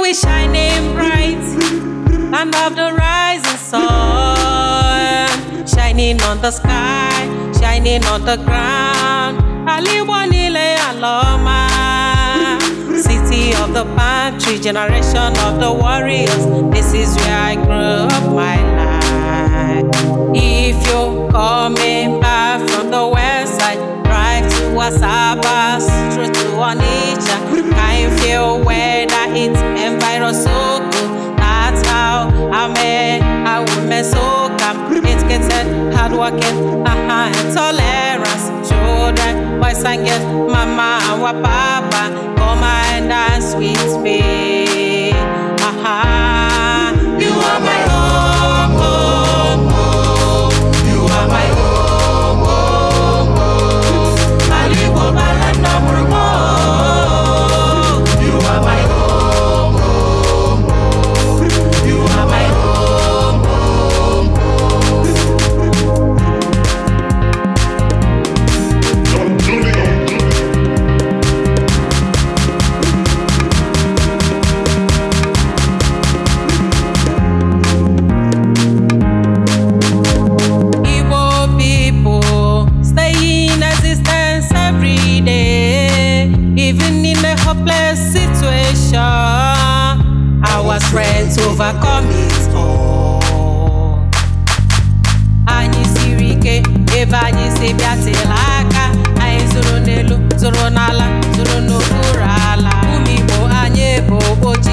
we shining bright and of the rising sun, shining on the sky, shining on the ground. Aliwanile Aloma, city of the pantry, generation of the warriors. This is where I grew up my life. If you're coming back from the west side, drive to Wasaba, through to Onitsha. I feel whether it's you're so good. That's how I met a woman so calm. It's getting hard working, uh-huh, and Children, boys and girls, mama and papa. God's Anyị siri ike ebe anyị si bịatịla aka anyị zụrụ n'elu zụrụ n'ala zụrụ n'okpuru ala ụmụ Igbo anyị bụ oche